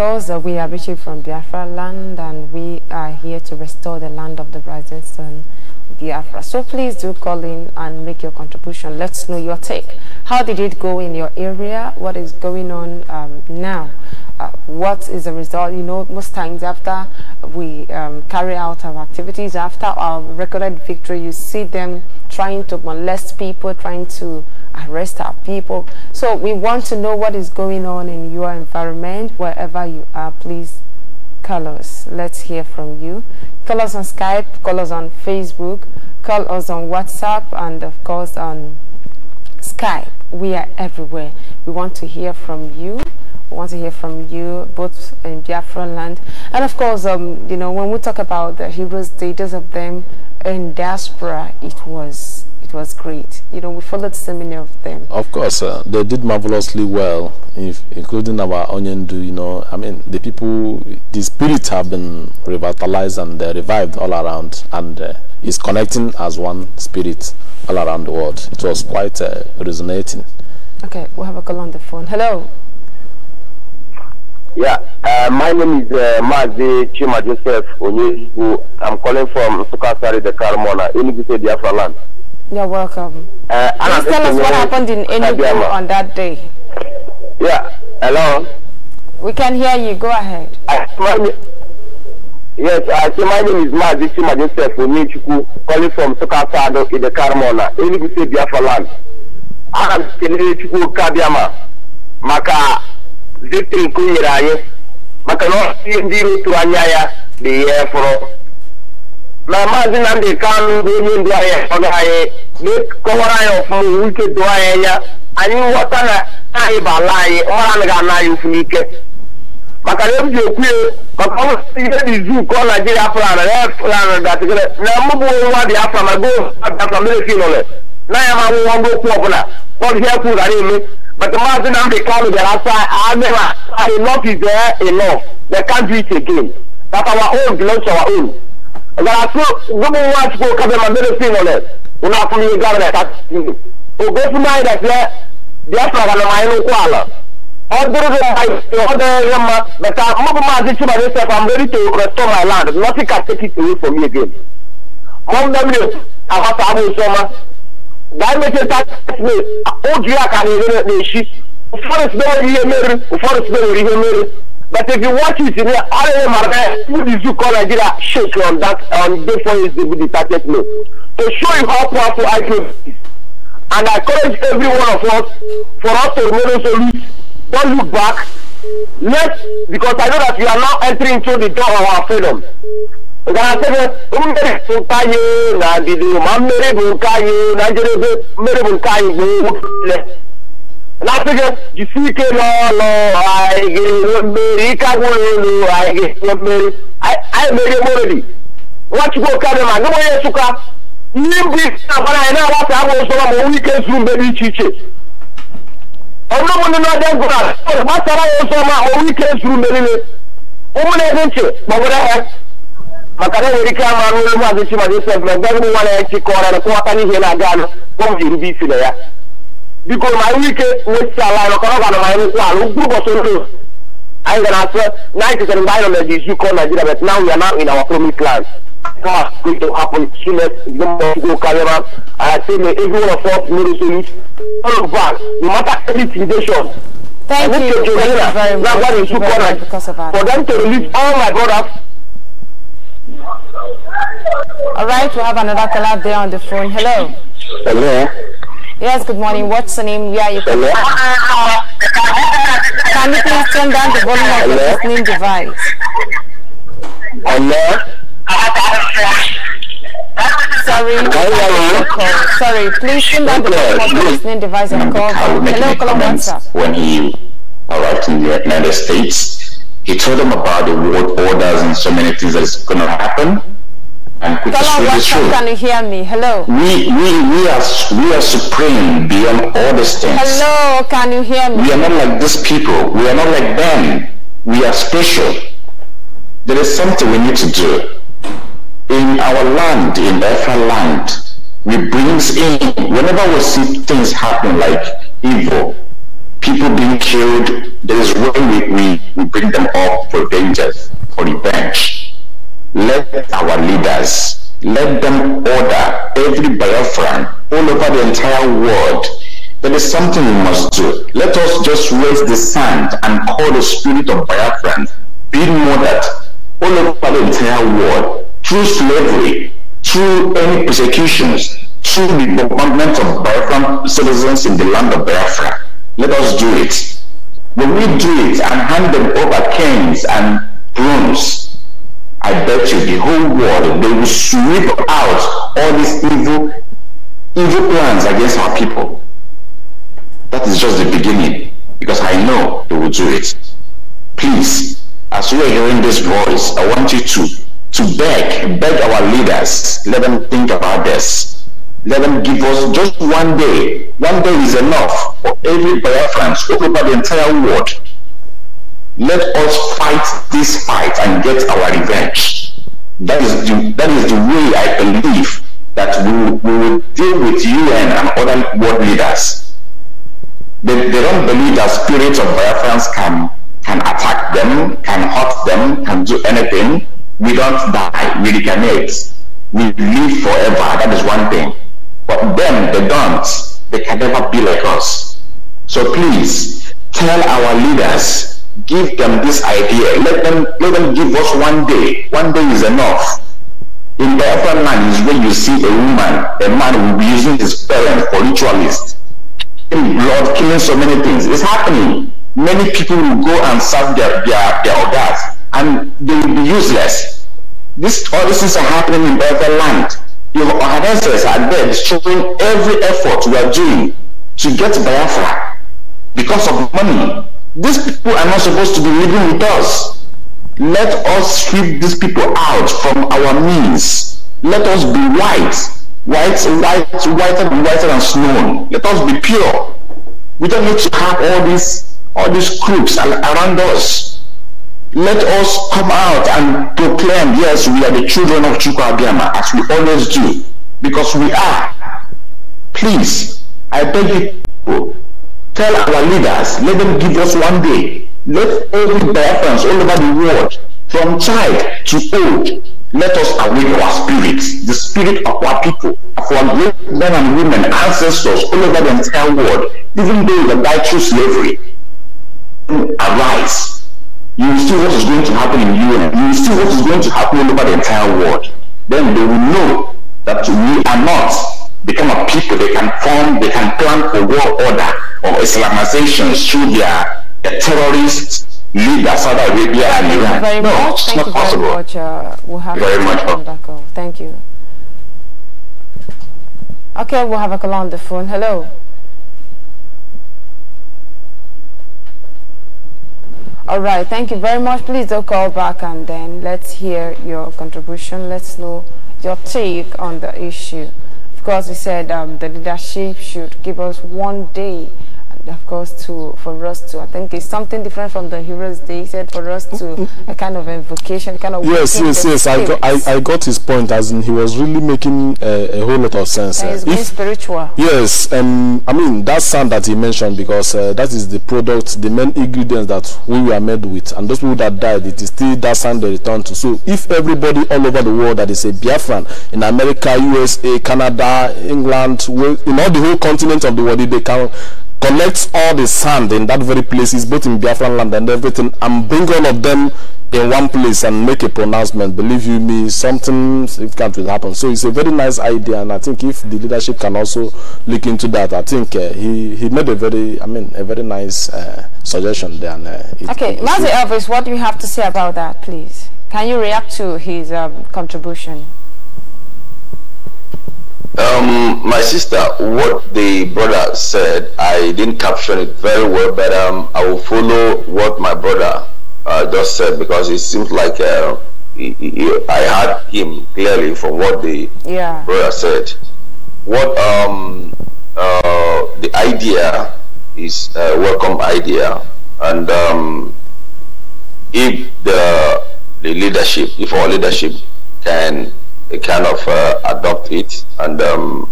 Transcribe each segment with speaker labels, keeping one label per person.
Speaker 1: because uh, we are reaching from Biafra land and we are here to restore the land of the rising sun, Biafra. So please do call in and make your contribution. Let's know your take. How did it go in your area? What is going on um, now? Uh, what is the result? You know, most times after we um, carry out our activities, after our recorded victory, you see them trying to molest people, trying to arrest our people. So we want to know what is going on in your environment, wherever you are. Please call us. Let's hear from you. Call us on Skype, call us on Facebook, call us on WhatsApp, and of course on Skype. We are everywhere. We want to hear from you. We want to hear from you, both in Biafra land. And of course, um, you know, when we talk about the heroes, the of them in diaspora, it was it was great. You know, we followed so many of them.
Speaker 2: Of course, uh, they did marvelously well, if, including our onion. Do you know. I mean, the people, the spirit have been revitalized and revived all around and uh, is connecting as one spirit all around the world. It was quite uh, resonating.
Speaker 1: Okay, we have a call on the phone. Hello.
Speaker 2: Yeah, uh, my name is uh, Mazi Chima Joseph Onyehu. I'm calling from Sukasari, the Karamona, uh, in Biafra land.
Speaker 1: You're welcome.
Speaker 2: Uh, Please tell us what happened in Enugu on
Speaker 1: that day.
Speaker 2: Yeah, hello?
Speaker 1: We can hear you. Go ahead.
Speaker 2: I, my, yes, I say my name is Mazi Majestef Onyechuku, calling from Sokasado in the Carmona, Enugu State, Biafra land. I am Kenele Chukwu Kabiama, maka victory nke o maka na ihe ndị iro tụrụ anya ya dị ya na maazị Nnamdị Kanụ bụ onye ndụ anyị ọ anyị kọwara anyị ọfụma onwe ike doo anyị anya anyị ghọta na anyị bụ ala anyị ọra anaghị ana anyị ụfụ n'ike maka na eji ekwu ya maka ọ ihe dị izu kọọ Naijiria plana ya plana gatịgịrị na mụ bụ ma goo mere na ama nwụwa mgbe ọbụla ihe gara eme maka maazị Nnamdị Kanụ bịara asa agịra enough is enough they can't again that our garaso gbogbo wa ti ko kabe ma mele fi ngole una funu ye gabra ta tindu o go funu ay da fe dia fra ga ma yinu ko ala o duru do ay o de yamma da ta ma ji ci ba ni se fam ready to restore my land nothing can take it away from me again mo nda mi a ha ta mu so ma da me ta me o ju ya ka ni ne shi o forest But if you watch it, you know, all of them are there. Who did you call Nigeria shake on that on day four is the 30th To show you how powerful IPOB is. And I encourage every one of us for us to remain resolute. Don't look back. Yes, because I know that we are now entering into the door of our freedom. Gana-sebe, mmeri bụ nke anyị na ndidi ma mmeri na njedebe mmeri bụ nke na-asị gị jisie ike n'ọlụ anyị ga-enwe mmeri ike agwụrụ elu anyị ga-enwe mmeri anyị merie moredi
Speaker 3: nwachukwu okanema ndị onye
Speaker 2: nsụka ihe mbụ isi na-agbara anyị na-agbasa agwa ụzọma ma onwe ike zuru mgbe dị iche iche ọbụrụ ụmụnne na-abịa ngụra gbasara ya ụzọma onwe ike zuru mgbe niile ụmụ na-ede ntị kpọgara ha maka na enwere ike ama anụ elu maazị chimazi sef na mgbe ụmụ nwa na ya chi chịkọrọ na kụwata n'ihe na-aga anụ ụmụ erube isi na ya biko ma iwe ike nwesisi i anyị ọkọrọ ga na anyị nkwụ ala ugwu ụbọchị ndụ anyị gara asọ na anyị chetara mgbe anyị nọ na Nigeria but now we are in our promised land God going to happen soonest the more go carry and I say may every one of us all of us no matter Thank you. Thank you very much. Thank you very
Speaker 1: much For them to release all my brothers All right, we have another caller there on the phone. Hello. Hello. Yes, good morning. What's the name? Yeah, you can. Ah, ah, ah. Can you please turn down the volume of your listening device? Hello? Sorry, sorry, please turn down the volume of your listening device and call. Hello, Colombia.
Speaker 2: When he arrived in the United States, he told them about the world orders and so many things that's going to happen and quick Tell to the truth. Can you
Speaker 1: hear me? Hello. We we
Speaker 2: we are we are supreme beyond all these things.
Speaker 1: Hello, can you hear me? We are not like
Speaker 2: these people. We are not like them. We are special. There is something we need to do. In our land, in Ephra land, we brings in whenever we see things happen like evil, people being killed, there is when we, we, we bring them up for vengeance, for revenge let our leaders, let them order every Biafran
Speaker 3: all over the entire world. There is something we must do. Let us just raise the sand and call the spirit of Biafran, being that all over the entire
Speaker 2: world through slavery, through any persecutions, through the bombardment of Biafran citizens in the land of Biafra. Let us do it. When we do it and hand them over canes and brooms, I bet you the whole world, they will sweep out all these evil, evil plans against our people. That is just the beginning, because I know they will do it. Please, as you are hearing this voice, I want you to, to beg, beg our leaders, let them think about this. Let them give us just one day. One day is enough for every Biafran, over the entire world, let us fight this fight and get our revenge. That is the, that is the way I believe that we, we will deal with UN and other world leaders. They, they don't believe that spirits of violence can, can attack them, can hurt them, can do anything. We don't die, we recarnate. We live forever, that is one thing. But them, they don't. They can never be like us. So please, tell our leaders give them this idea. Let them let them give us one day. One day is enough. In the upper land is when you see a woman, a man will be using his parents for ritualists, blood, killing so many things. It's happening. Many people will go and serve their their, their orders, and they will be useless. This all these things are happening in the other land. Your ancestors are dead. Showing every effort we are doing to get Biafra because of money. These people are not supposed to be living with us. Let us sweep these people out from our means. Let us be white, white, white, whiter and whiter than snow. Let us be pure. We don't need to have all these all these groups around us. Let us come out and proclaim, yes, we are the children of Chukwabiyama, as we always do, because we are. Please, I beg you, Tell our leaders, let them give us one day. Let every Africans all over the world, from child to old, let us awake our spirits, the spirit of our people, of our great men and women, ancestors all over the entire world, even though that died through slavery. Arise. You will see what is going to happen in UN. You will see what is going to
Speaker 3: happen all over the entire world. Then they will know that we are not become a people they
Speaker 2: can form, they can plan a world order of Islamization through their terrorist leader, Saudi Arabia and
Speaker 1: Iran. Very no, much. it's Thank not possible. Very much. Uh, we'll have very much. On Thank you. Okay, we'll have a call on the phone. Hello. All right, thank you very much. Please do call back and then let's hear your contribution. Let's know your take on the issue. Of course, he said um, the leadership should give us one day of course, to for us to. I think it's something different from the Heroes they said for us to a kind of invocation, kind of. Yes, yes, yes. I got, I, I
Speaker 2: got his point. As in, he was really making uh, a whole lot of sense. Uh, if,
Speaker 1: spiritual.
Speaker 2: Yes, um, I mean that sound that he mentioned because uh, that is the product, the main ingredients that we were made with, and those people that died, it is still that sound they return to. So if everybody all over the world that is a Biafran in America, USA, Canada, England, in all the whole continent of the world, they can collects all the sand in that very places, both in Biafran land and everything, and bring all of them in one place and make a pronouncement. Believe you me, something significant will happen. So it's a very nice idea, and I think if the leadership can also look into that, I think uh, he he made a very, I mean, a very nice uh, suggestion there. And, uh, it, okay, Mazi
Speaker 1: Elvis, what do you have to say about that, please? Can you react to his um, contribution?
Speaker 2: Um, my sister, what the brother said, I didn't caption it very well, but um, I will follow what my brother uh, just said because it seems like uh, he, he, I heard him clearly from what the yeah. brother said. What um, uh, the idea is a uh, welcome idea, and um, if the the leadership, if our leadership can kind of uh, adopt it and um,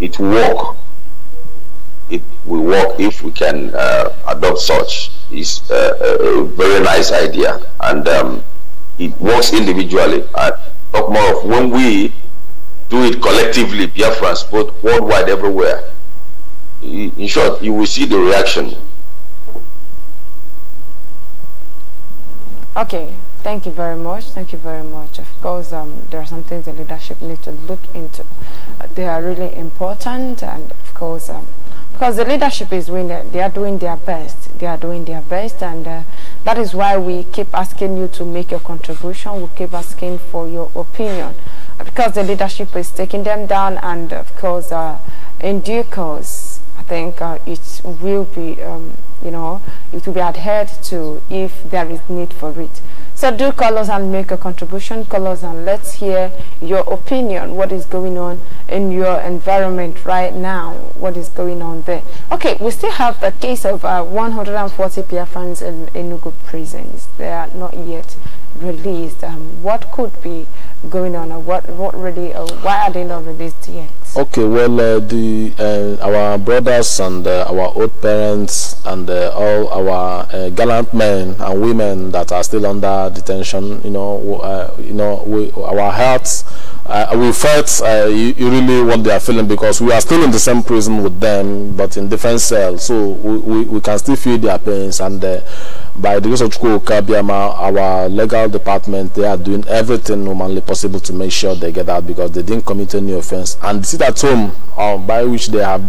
Speaker 2: it work. It will work if we can uh, adopt such. It's uh, a, a, very nice idea and um, it works individually. I talk more of when we do it collectively, Biafrans, both worldwide, everywhere. In short, you will see the reaction.
Speaker 1: Okay, Thank you very much. Thank you very much. Of course, um, there are some things the leadership need to look into. Uh, they are really important, and of course, um, because the leadership is doing, they are doing their best. They are doing their best, and uh, that is why we keep asking you to make your contribution. We keep asking for your opinion, uh, because the leadership is taking them down, and of course, uh, in due course, I think uh, it will be, um, you know, it will be adhered to if there is need for it. So do call us and make a contribution. Call us and let's hear your opinion. What is going on in your environment right now? What is going on there? Okay, we still have the case of uh, 140 Biafrans in Enugu prisons. They are not yet released. Um, what could be going on or what what really uh, why are they not released yet
Speaker 2: okay well uh, the uh, our brothers and uh, our old parents and uh, all our uh, gallant men and women that are still under detention you know you know we, our hearts we felt you, you, really what they are feeling because we are still in the same prison with them but in different cells so we, we, we can still feel their pains and by the grace of Chukwuka our legal department they are doing everything humanly possible possible to make sure they get out because they didn't commit any offense and sit at home um, by which they have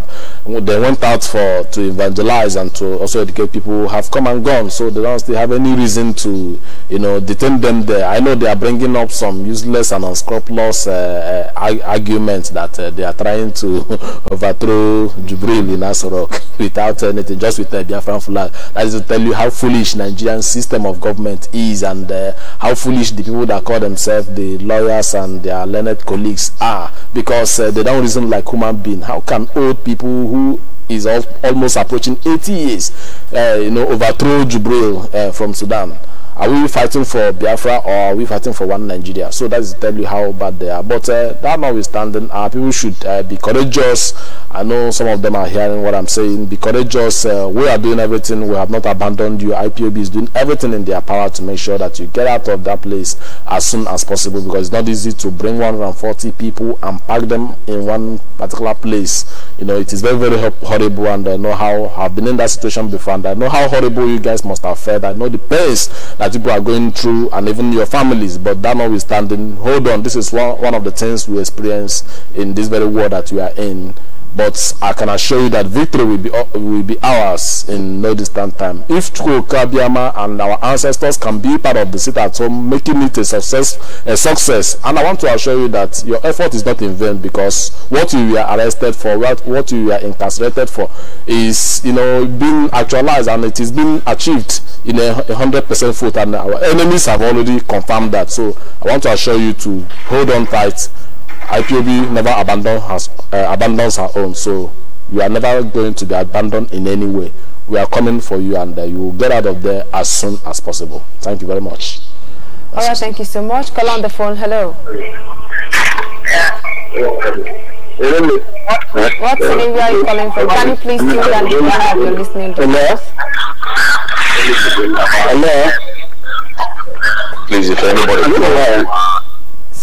Speaker 2: they went out for to evangelize and to also educate people who have come and gone so they don't still have any reason to you know detain them there i know they are bringing up some useless and unscrupulous uh, uh, arguments that uh, they are trying to overthrow jubril in asorok without anything just with uh, the biafran flag that is to tell you how foolish nigerian system of government is and uh, how foolish the people that call themselves the lawyers and their learned colleagues are because uh, they don't reason like human being. How can old people who is al almost approaching 80 years, uh, you know, overthrow Jubril uh, from Sudan? are we fighting for Biafra or are we fighting for one Nigeria? So that is tell you how bad they are. But uh, that notwithstanding, uh, people should uh, be courageous. I know some of them are hearing what I'm saying. Be courageous. Uh, we are doing everything. We have not abandoned you. IPOB is doing everything in their power to make sure that you get out of that place as soon as possible because it's not easy to bring 140 people and pack them in one particular place. You know, it is very, very horrible and I know how I've been in that situation before and I know how horrible you guys must have felt. I know the pains that people are going through and even your families but that notwithstanding hold on this is one one of the things we experience in this very world that we are in but I can assure you that victory will be, uh, will be ours in no distant time. If Chukwukabiama and our ancestors can be part of the city at home, making it a success, a success, and I want to assure you that your effort is not in vain because what you were arrested for, what, what you were incarcerated for, is you know being actualized and it is being achieved in a hundred percent foot. And our enemies have already confirmed that. So I want to assure you to hold on tight IPOB never abandon has, uh, abandons her own, so you are never going to be abandoned in any way. We are coming for you and uh, you will get out of there as soon as possible. Thank you very much.
Speaker 1: All right, thank you so much. Call on the phone. Hello. What city are you calling from? Can you please tune and hear you're
Speaker 2: listening to Hello? Hello? Please, if anybody... Hello?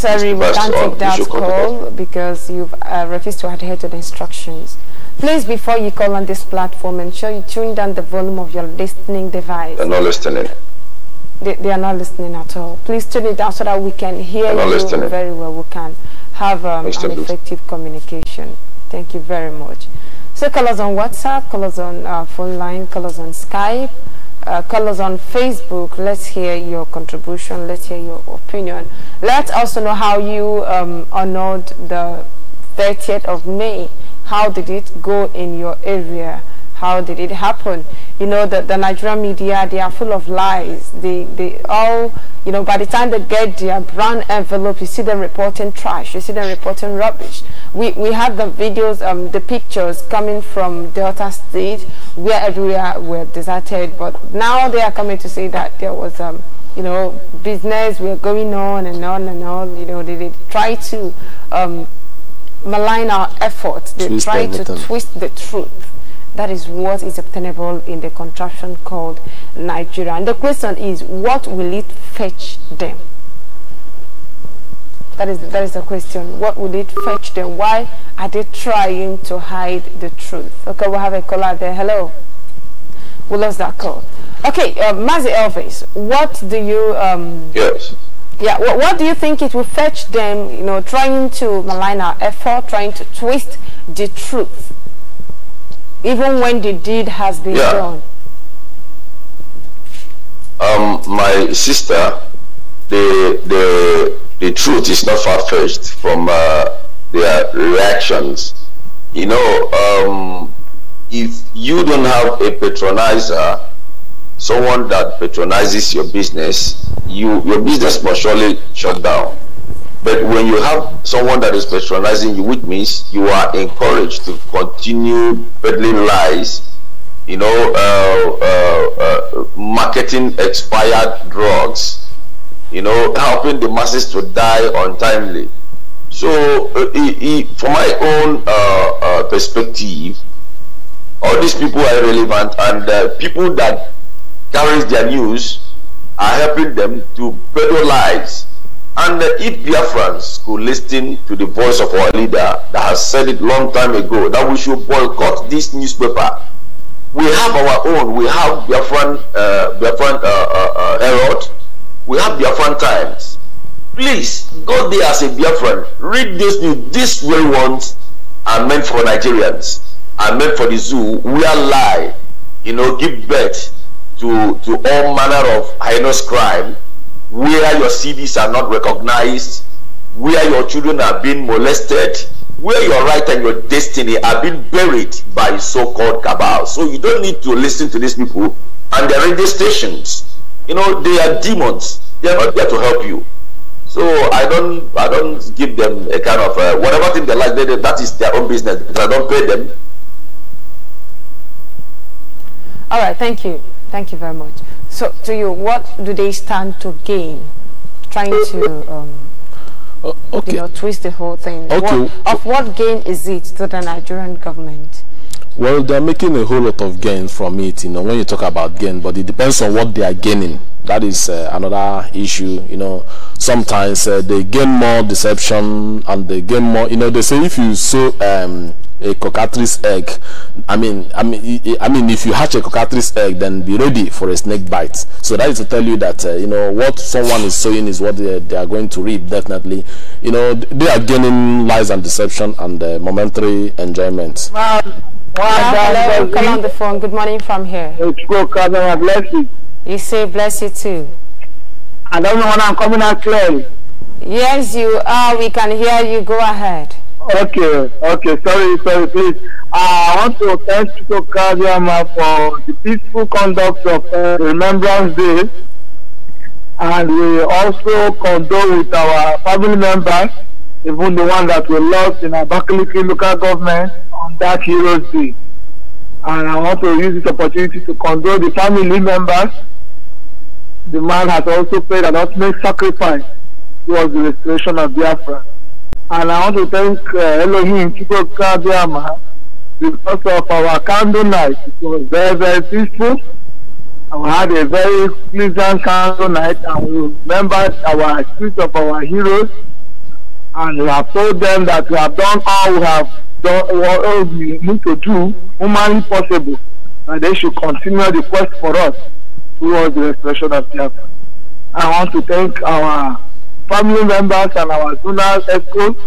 Speaker 1: Sorry, we can't take that call because you've uh, refused to adhere to the instructions. Please, before you call on this platform, ensure you tune down the volume of your listening device. They're not listening. They, they are not listening at all. Please tune it down so that we can hear you listening. very well. We can have um, an effective communication. Thank you very much. So call us on WhatsApp, call us on uh, phone line, call us on Skype uh, colors on Facebook. Let's hear your contribution. Let's hear your opinion. Let's also know how you um, honored the 30th of May. How did it go in your area? how did it happen? You know, the, the Nigerian media, they are full of lies. They, they all, you know, by the time they get their brown envelope, you see them reporting trash, you see them reporting rubbish. We, we had the videos, um, the pictures coming from Delta State, where everywhere were deserted, but now they are coming to say that there was... Um, you know, business we're going on and on and on. You know, they, they try to um, malign our efforts. They twist try everything. to twist the truth. That is what is obtainable in the contraption called Nigeria. And the question is, what will it fetch them? That is, that is the question. What will it fetch them? Why are they trying to hide the truth? Okay, we will have a caller there. Hello. We lost that call. Okay, uh, Mazi Elvis, what do you... Um, yes. Yeah, what, what do you think it will fetch them, you know, trying to malign our effort, trying to twist the truth? even when the deed has been yeah. done?
Speaker 2: Um, my sister, the the the truth is not far fetched from uh, their reactions. You know, um, if you don't have a patronizer, someone that patronizes your business, you your business must surely shut down. But when you have someone that is patronizing you, which means you are encouraged to continue peddling lies, you know, uh, uh, uh, marketing expired drugs, you know, helping the masses to die untimely. So, uh, it, from my own uh, uh, perspective, all these people are relevant, and people that carry their news are helping them to peddle lies and if Biafrans could listen to the voice of our leader that has said it long time ago that we should boycott this newspaper, we have our own. We have Biafran, uh, Biafran uh, uh, uh Herald. We have Biafran Times. Please go there as a Biafran. Read this news. These real ones are meant for Nigerians. Are meant for the zoo. We are lie. You know, give birth to to all manner of heinous crime where your CVs are not recognized, where your children are being molested, where your right and your destiny are being buried by so-called cabal. So you don't need to listen to these people and their radio stations. You know, they are demons. They are not there to help you. So I don't, I don't give them a kind of uh, whatever thing they like. They, that is their own business I don't pay them.
Speaker 1: All right. Thank you. Thank you very much. So, to you, what do they stand to gain? Trying to um, uh, okay. you know, twist the whole thing. Okay. What, of what gain is it to the Nigerian government?
Speaker 2: Well, they're making a whole lot of gains from it, you know, when you talk about gain, but it depends on what they are gaining. That is uh, another issue, you know. Sometimes uh, they gain more deception and they gain more, you know, they say if you sow um, a cockatrice egg i mean i mean i mean if you hatch a cockatrice egg then be ready for a snake bite so that is to tell you that uh, you know what someone is sowing is what they, they, are going to reap definitely you know they are gaining lies and deception and uh, momentary enjoyment
Speaker 1: wow. Wow, hello, come on the phone. Good morning from here. cousin. I bless you. You say bless you too. I don't know when I'm coming out clearly. Yes, you are. We can hear you. Go ahead.
Speaker 2: Okay, okay, sorry, sorry, please. Uh, I want to thank Chico Kadiama for the peaceful conduct of uh, Remembrance Day. And we also condole with our family members, even the one that we lost in our Abakaliki local government on that Heroes Day. And I want to use this opportunity to condole the family members. The man has also paid an ultimate sacrifice towards the restoration of Biafra and I want to thank uh, Elohim Chukwuka because of our candle It was very, very peaceful. And we had a very pleasant candle night and we remembered our spirit of our heroes and we have told them that we have done all we have done what we need to do humanly possible and they should continue the quest for us towards the expression of the. I want to thank our family members and our zonal headcoach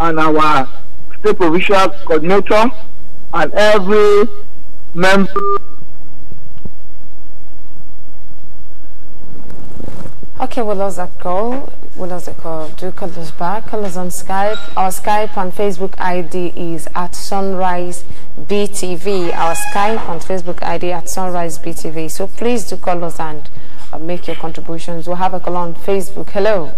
Speaker 2: and our state provincial coordinator and every member.
Speaker 1: Okay, we lost that call. We lost the call. Do call us back. Call us on Skype. Our Skype and Facebook ID is at Sunrise BTV. Our Skype and Facebook ID at Sunrise BTV. So please do call us and uh, make your contributions. We'll have a call on Facebook. Hello.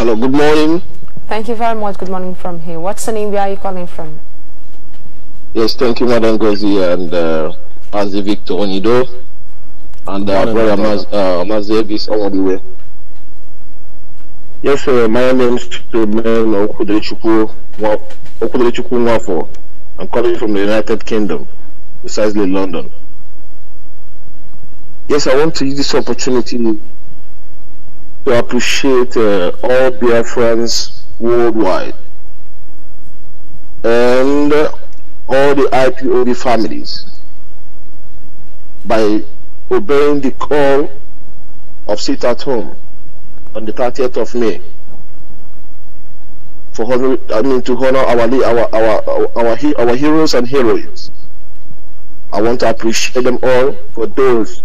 Speaker 2: Hello, good morning.
Speaker 1: Thank you very much. Good morning from here. What's the name? Where are you calling from?
Speaker 2: Yes, thank you, Madam Gozi and uh, Mazi Victor Onido and uh, morning, brother Maz, uh, Mazeb is all the way. Yes, sir. My name is Chikwumen Okudrechukwu I'm calling from the United Kingdom, precisely London. Yes, I want to use this opportunity to appreciate uh, all friends worldwide and all the IPOD families by obeying the call of sit at home on the 30th of May for honor, I mean to honor our our our our, our heroes and heroines. I want to appreciate them all for those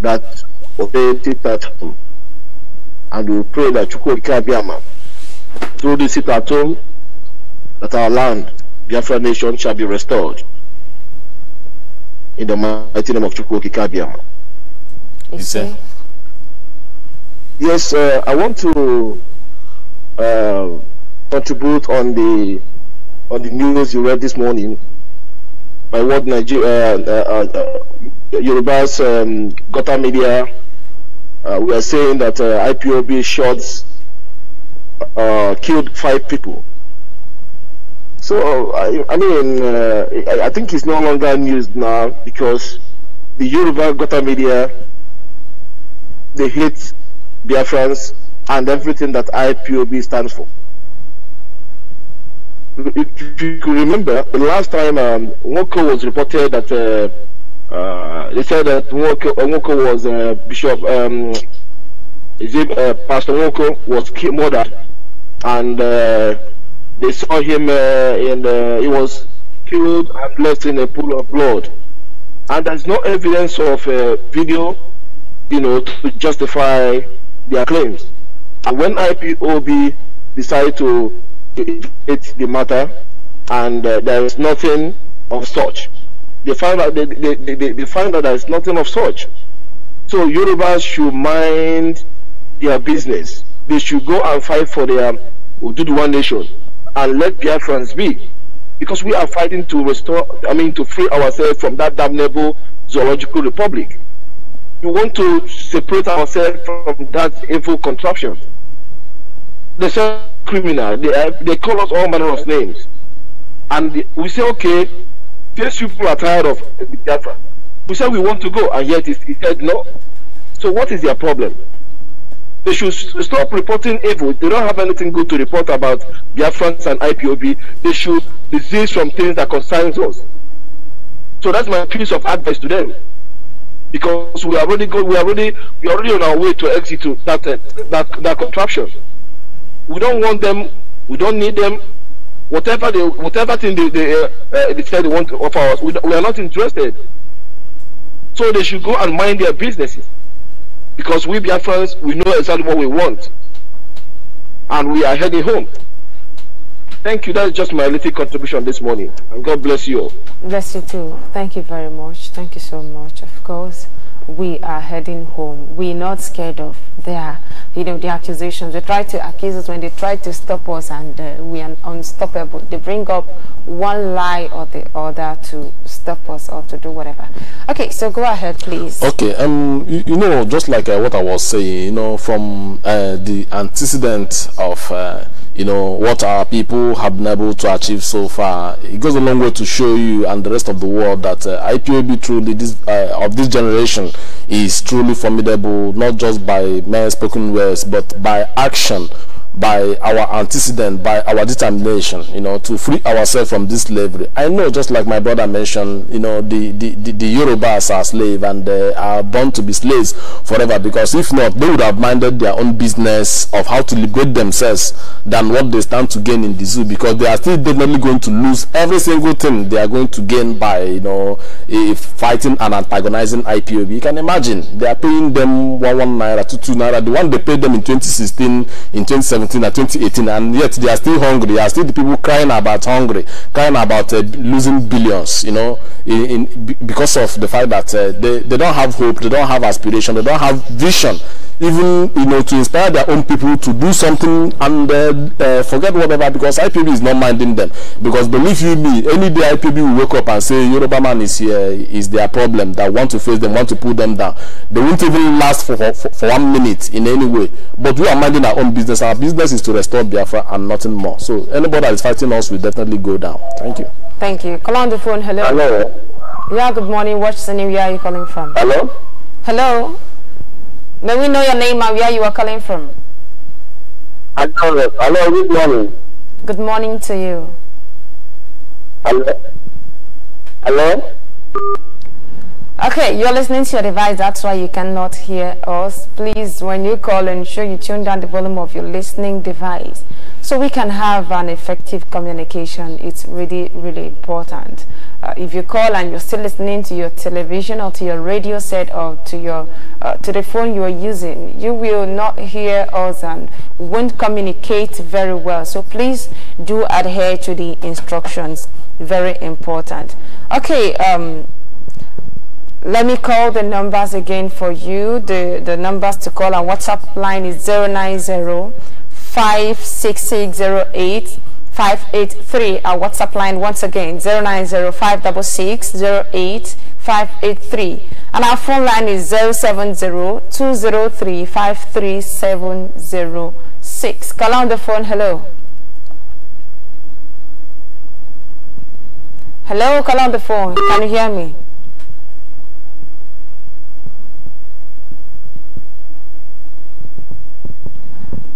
Speaker 2: that obeyed it at home and we pray that Chukwuka Biama, through this sit at home, that our land, Biafra nation, shall be restored. In the mighty name of Chukwuka Biama. Yes, sir. Yes, uh, I want to uh, contribute on the on the news you read this morning by what Nigeria uh, uh, uh, Yoruba's um, Gota Media uh, we are saying that uh, IPOB shots uh, killed five people. So uh, I, I mean, uh, I, I, think it's no longer news now because the Yoruba Gota media they hate friends and everything that IPOB stands for. If you remember, the last time um, Woko was reported that uh, uh, they said that Nwoko, uh, Nwoko was uh, Bishop, um, it, uh, Pastor Nwoko was murdered, and uh, they saw him and he was killed and left in a pool of blood. And there's no evidence of video, you know, to justify their claims. And when IPOB decided to investigate the matter, and there is nothing of such they find out they, they, they, they find out that it's nothing of such. So Yorubas should mind their business. They should go and fight for their the One Nation and let friends be. Because we are fighting to restore, I mean, to free ourselves from that damnable zoological republic. We want to separate ourselves from that evil contraption. They say criminal, they, they call us all manner of names. And we say, okay, these people are tired of Biafra. We said we want to go, and yet he said no. So what is their problem? They should stop reporting evil. They don't have anything good to report about Biafrans and IPOB. They should desist from things that concerns us. So that's my piece of advice to them. Because we are already go, we are already we are already on our way to exit that uh, that that contraption. We don't want them. We don't need them. Whatever they, whatever thing they they, uh, uh they said they want to offer us, we, we are not interested. So they should go and mind their businesses, because we friends, we know exactly what we want, and we are heading home. Thank you. That's just my little contribution this morning. And God bless you all.
Speaker 1: Bless you too. Thank you very much. Thank you so much, of course we are heading home. We're not scared of their, you know, the accusations. They try to accuse us when they try to stop us, and uh, we are unstoppable. They bring up one lie or the other to stop us or to do whatever. Okay, so go ahead, please.
Speaker 2: Okay, um, you, you know, just like uh, what I was saying, you know, from uh, the antecedent of uh, you know what our people have been able to achieve so far it goes a long way to show you and the rest of the world that uh, IPOB truly this uh, of this generation is truly formidable not just by mere spoken words but by action by our antecedent, by our determination, you know, to free ourselves from this slavery. I know, just like my brother mentioned, you know, the, the, the, the Yorubas are slaves and they are born to be slaves forever because if not, they would have minded their own business of how to liberate themselves than what they stand to gain in the zoo because they are still definitely going to lose every single thing they are going to gain by, you know, fighting and antagonizing IPOB. You can imagine, they are paying them one, one naira, two, two naira. The one they paid them in 2016, in 2017, 2017 and 2018 and yet they are still hungry they are still the people crying about hungry crying about uh, losing billions you know in, in, because of the fact that uh, they, they don't have hope they don't have aspiration they don't have vision even you know to inspire their own people to do something and uh, uh forget whatever because IPB is not minding them because believe you me any day IPB will wake up and say Yoruba man is here is their problem that want to face them want to pull them down they won't even last for, for, for one minute in any way but we are minding our own business our business business is to restore Biafra and nothing more. So anybody that is fighting us will definitely go down. Thank you.
Speaker 1: Thank you. Call on the phone. Hello. Hello. Yeah, good morning. What's the name? Where are you calling from? Hello. Hello. May we know your name and where you are calling from?
Speaker 2: Hello. Hello. Good morning.
Speaker 1: Good morning to you.
Speaker 2: Hello. Hello.
Speaker 1: Okay, you're listening to your device, that's why you cannot hear us. Please, when you call, ensure you tune down the volume of your listening device so we can have an effective communication. It's really, really important. Uh, if you call and you're still listening to your television or to your radio set or to your uh, to the phone you are using, you will not hear us and won't communicate very well. So please do adhere to the instructions. Very important. Okay. Um, let me call the numbers again for you. The, the numbers to call on WhatsApp line is 090 56608 583. Our WhatsApp line once again 090 56608 583 and our phone line is 070-203-53706 call on the phone hello hello call on the phone can you hear me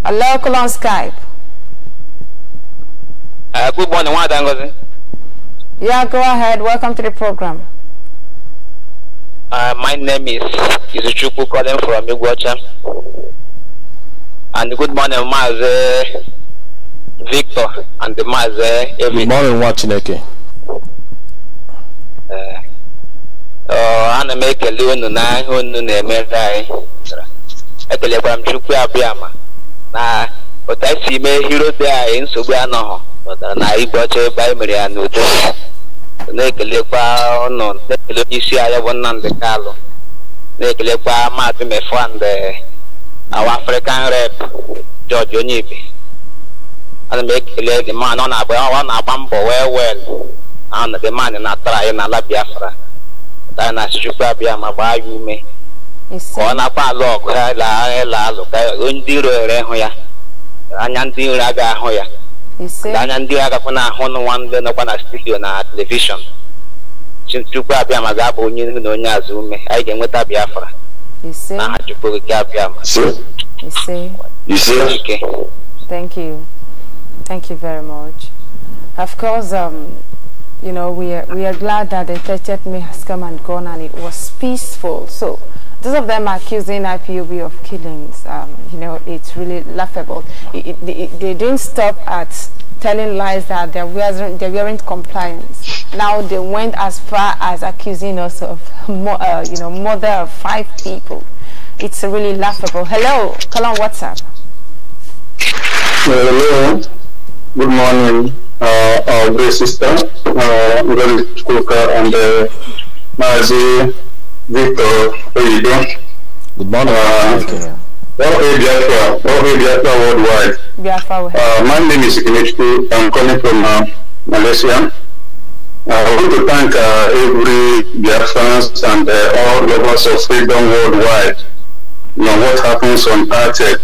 Speaker 1: alekụlọ on skype
Speaker 4: uh, good morning nwada ngozi
Speaker 1: yeah go ahead welcome to the program
Speaker 4: uh, my name is Izuchukwu calling from Iguacha and good morning Maazị Victor and Maazị Evie.
Speaker 2: good morning nwa Chineke uh,
Speaker 4: oh, ana m ekele unu na ihe unu na-emere anyị ekelekwara m Chukwu abịa ma na otu anyị si mee hero dị anyị nsogbu anọghọ pụtara na igbe ọcha ebe anyị mere ya n'udo na-ekelekwa ọnụ na-ekele onye isi anyị bụ Nnamdị Kalụ na-ekelekwa maazị Mefwand awa African rep George Onyibe ana m ekele the man ọ na-agba mbọ wee wel na the man na-atara anyị n'ala Biafra anyị na-asịchukwu abịa ma gbaa ya ume ka ọ nakwa alụ ọgụ ya laa ịla alụ ka ndị iro ere hụ ya anya ndị iro aga ahụ ya anya ndị iro agakwa na-ahụ n'ụwa ndị nọkwa na studio na telivishọn chukwu abịa ma ga-abụ onye ihu na onye azụ ume anyị ga-enweta biafra na aha chukwu okike abịa ma ike
Speaker 1: Thank you. Thank you very much. Of course, um, you know, we are, we are glad that the 30th May has come and gone and it was peaceful. So Those of them accusing IPOB of killings, um, you know, it's really laughable. It, it, it, they didn't stop at telling lies that they, were, weren't compliant. Now they went as far as accusing us of, uh, you know, murder of five people. It's really laughable. Hello, call on WhatsApp. Hello, good morning, uh, uh, dear sister,
Speaker 2: uh, and uh, Victor Oyedo. Good morning. Uh, Welcome Biafra, welcome Biafra worldwide. Biafra. Uh, my name is Ikinichku. I'm coming from uh, Malaysia. Uh, I want to thank uh, every Biafrans and uh, all lovers of freedom worldwide. You know what happens on 30th,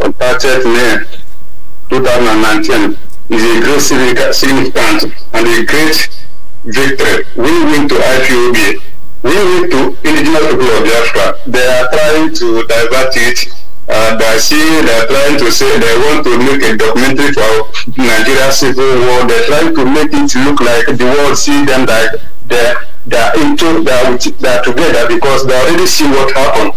Speaker 2: on 30th May 2019 is a great significant,
Speaker 3: and a great victory. We win to IPOB. We need to indigenous people of Biafra, they are trying to divert it and I see they're trying to say they want to make a documentary for Nigeria civil war. They're trying to make it
Speaker 2: look like the world see them that they're, they're into, they're, they're together because they already see what happened.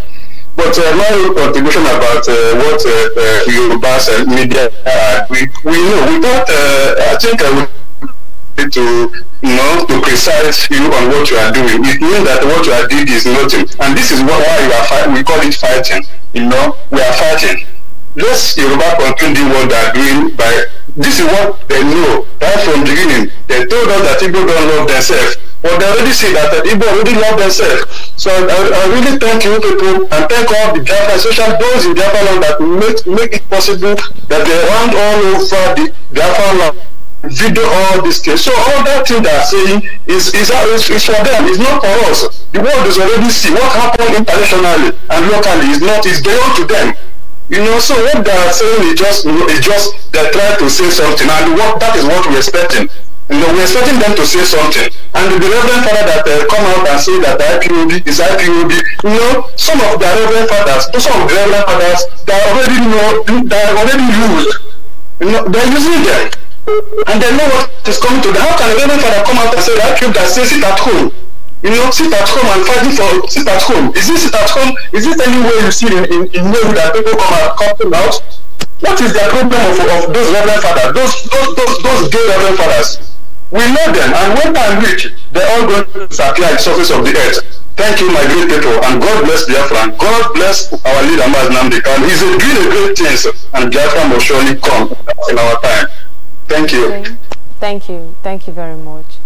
Speaker 2: But uh, my contribution about uh, what uh, uh, Yoruba's media, uh, we, we know, We uh, I think uh, to you know to criticize you on what you are doing. It means that what you are doing is nothing, and this is why we are we call it fighting. You know, we are fighting. Let's Yoruba continue what they are doing by this is what they know right from the beginning. They told us that people don't love themselves. But they already see that, that Igbo already love themselves. So I, I really thank you people and thank all the Biafra social those in Japan that make, make it possible that they run all over the Biafra land video all these things. So all that thing they're saying is is, uh, is is for them, it's not for us. The world is already see what happened internationally and locally is not is beyond to them. You know, so what they are saying is just is just they're trying to say something and what that is what we're expecting. You know, we're expecting them to say something. And the Reverend Father that uh, come out and say that IPOB is IPOB, you know, some of the Reverend Fathers, some of the Reverend Fathers, they already know, they already used. You know, they're using them and they know what is coming to them. How can a reverend father come out and say that cube that says sit at home? You know, sit at home and fighting for sit at home. Is this sit at home? Is this anywhere you see in, in, in way that people come out come out? What is the problem of, of those reverend fathers, those those those those gay reverend fathers? We know them and when time reach, they're all going to disappear in the surface of the earth. Thank you, my great people, and God bless Biafra, and God bless our leader, Maznam Dekan. He's doing a great thing, and Biafra will
Speaker 1: surely come in our time.
Speaker 2: Thank you.
Speaker 1: Thank you. Thank you very much.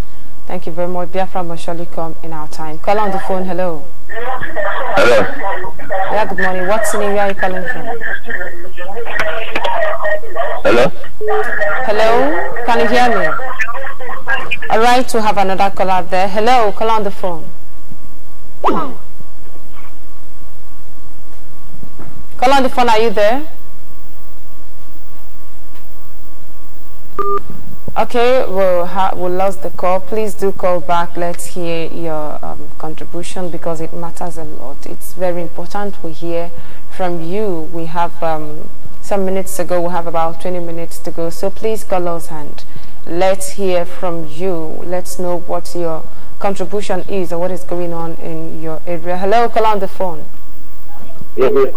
Speaker 1: Thank you very much. Biafra must surely come in our time. Call on the phone. Hello. Hello. Yeah, good morning. What's the name? Where are you calling from? Hello. Hello. Can you hear me? All right, we have another caller there. Hello. Call on the phone. Call on the phone. Are you there? Okay, we'll, we lost the call. Please do call back. Let's hear your um, contribution because it matters a lot. It's very important we hear from you. We have um, some minutes to go. We have about 20 minutes to go. So please call us and let's hear from you. Let's know what your contribution is or what is going on in your area. Hello, call on the phone. Yeah, yeah.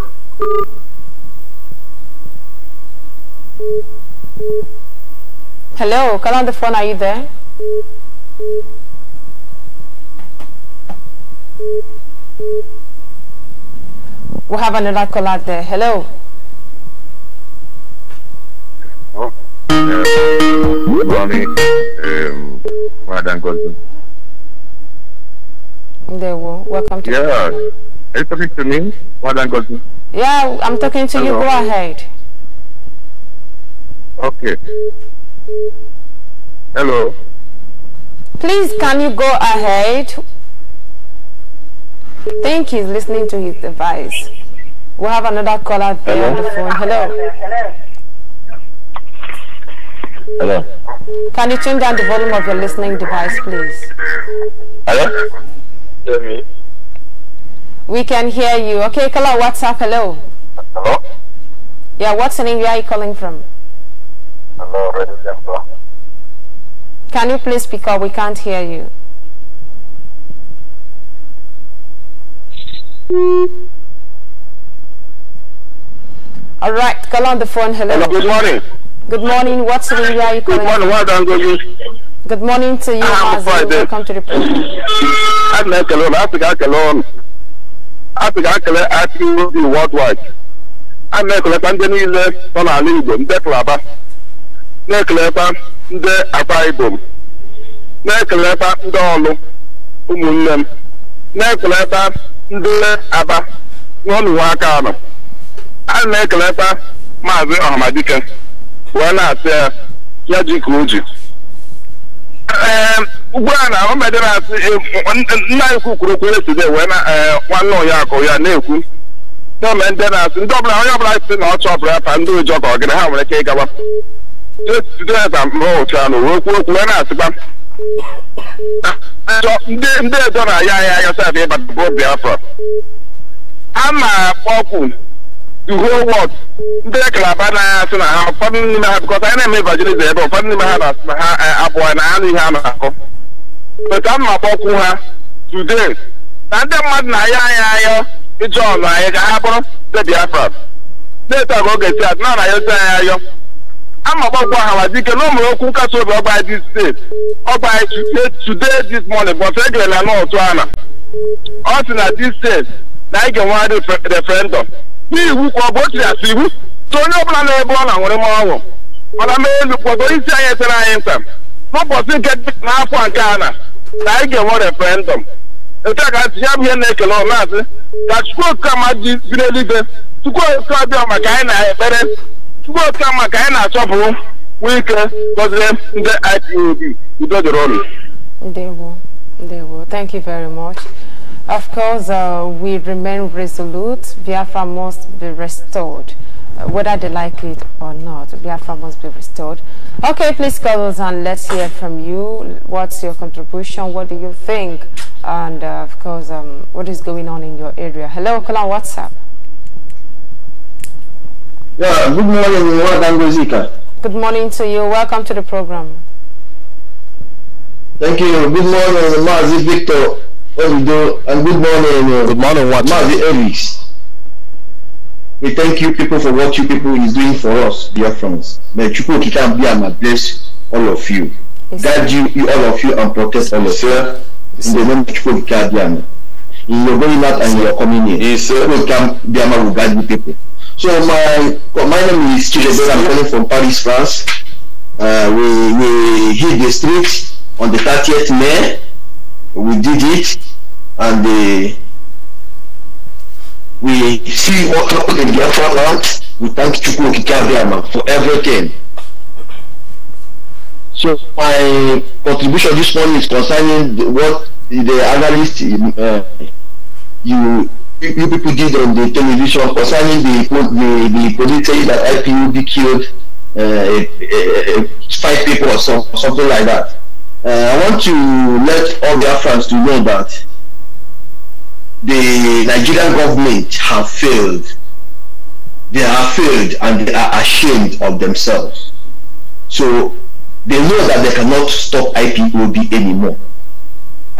Speaker 1: Hello, Carla on the phone, are you there? We have another caller there. Hello.
Speaker 3: Oh, good uh, morning, um, Madam Godwin.
Speaker 1: There we Welcome to Yes. The
Speaker 2: are you talking to me, Madam Godwin?
Speaker 1: Yeah, I'm talking to Hello. you. Go ahead.
Speaker 3: Okay. Hello.
Speaker 1: Please, can you go ahead? Thank he's listening to his device. We will have another caller there on the phone. Hello. Hello. Can you turn down the volume of your listening device, please?
Speaker 2: Hello. Hear me.
Speaker 1: We can hear you. Okay, caller, what's up? Hello. Hello. Yeah, what's the name? Where are you calling from? Can you please speak up? We can't hear you. All right, call on the phone. Hello. Hello good morning. Good morning. What's the area are you calling? Good morning. Well done,
Speaker 3: good.
Speaker 1: morning to you, I'm Azim.
Speaker 2: Welcome to the program. I'm not alone. Africa alone. Africa alone. Africa worldwide. I'm not alone. I'm not alone. I'm not alone. I'm na-ekelekwa ndị akwa m, na-ekelekwa ndị ọlụ ụmụnne m na-ekelekwa ndị aba n'ọnụwa aka anọ a na-ekelekwa maazị ọhamadike wee na-asị ya ya ji ka o ji ehm, ugbu a na omede na-asị e, nna ekwu kwuru okwu eside wee na e, nwanne ụnya ya na-ekwu na ome ndị na-asị ndị ọbụla onye ọbụla si na ọchọ ọbụla pa ndị ụjọ ka ọ gịrị ha nwere ike ịgawa etudenza mụcha na okwu okwu wee na-asịkwa ndị edo na ya ya ya sef ịbata obi biafra a na-akpọkwu uhuwọt ndị kalaba na asị na ha ụfọdụ n'ime ha bịkọta anyị na-eme evangelism ebe ụfọdụ n'ime ha na-asị na ha abụọ na anụ ihe a na-akọ a mma kpọkwu ha today na ndị mmadụ na-ayọ anyị ayọ ije ọnụ anyị ga ha bụrụ ndị biafra na-eto aga oge si adị na na ayọzi anyị ayọ amagbagwo ahawazike na ụmụrụ okwu nkasi obi ọgba di steeti ọgba today this morning but egere na nọtụ ana ọ sị na di steeti na anyị ga-enwe referendum n'iwu ka ọ bụ otu asị iwu so onye ọbụla na-ebe ọ na nwere m ọṅụ na m elu kwago isi anyị etere anyị nta n'ụbọchị nke n'afọ nke a na na anyị ga-enwe referendum nke a ka ntị ya bụ ihe na-ekele ọ na-asị ka chukwu okike ama ji biri eluigwe chukwu okike ọbịa maka anyị na ekpere IPOB
Speaker 1: Thank you very much. Of course, uh, we remain resolute. Biafra must be restored, uh, whether they like it or not. Biafra must be restored. Okay, please call us and let's hear from you. What's your contribution? What do you think? And uh, of course, um, what is going on in your area? Hello, call on WhatsApp.
Speaker 2: Yeah, good morning, Wangozika.
Speaker 1: Good morning to you. Welcome to the program.
Speaker 2: Thank you. Good morning, Mazi Victor Olido, and good morning, uh, good morning, Mazi Ellis. We thank you people for what you people is doing for us, dear friends. May Chukwuki can be and bless all of you. Yes. Guide you, you, all of you, and protect all of you. Yes. In the name of Chukwuki Kabiama. In your going out and your coming in. Yes, Chukwuki Kabiama will guide you people. So my well, my name is Chidebe. I'm calling from Paris, France. Uh, we we hit the street on the 30th May. We did it, and the, uh, we see what happened in the Biafra land. We thank Chukwu Kikabiama for everything. So my contribution this morning is concerning the, what the analyst uh, you you people did on the television concerning the the, the police saying that IPUB killed uh, five people or so, something like that. Uh, I want to let all Biafrans to know that the Nigerian government have failed. They have failed and they are ashamed of themselves. So they know that they cannot stop IPOB anymore.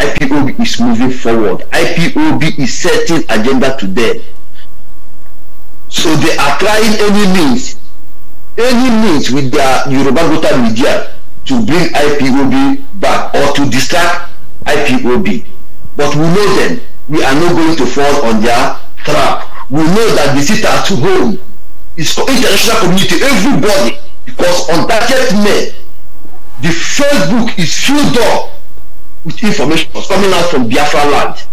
Speaker 2: IPOB is moving forward. IPOB is setting agenda to them. So they are trying any means, any means with their Yoruba Gota media to bring IPOB back or to distract IPOB. But we know them. We are not going to fall on their trap. We know that the sit at home is for international community, everybody, because on that men, the Facebook is filled up with information coming out from Biafra land.